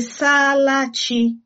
saala chi?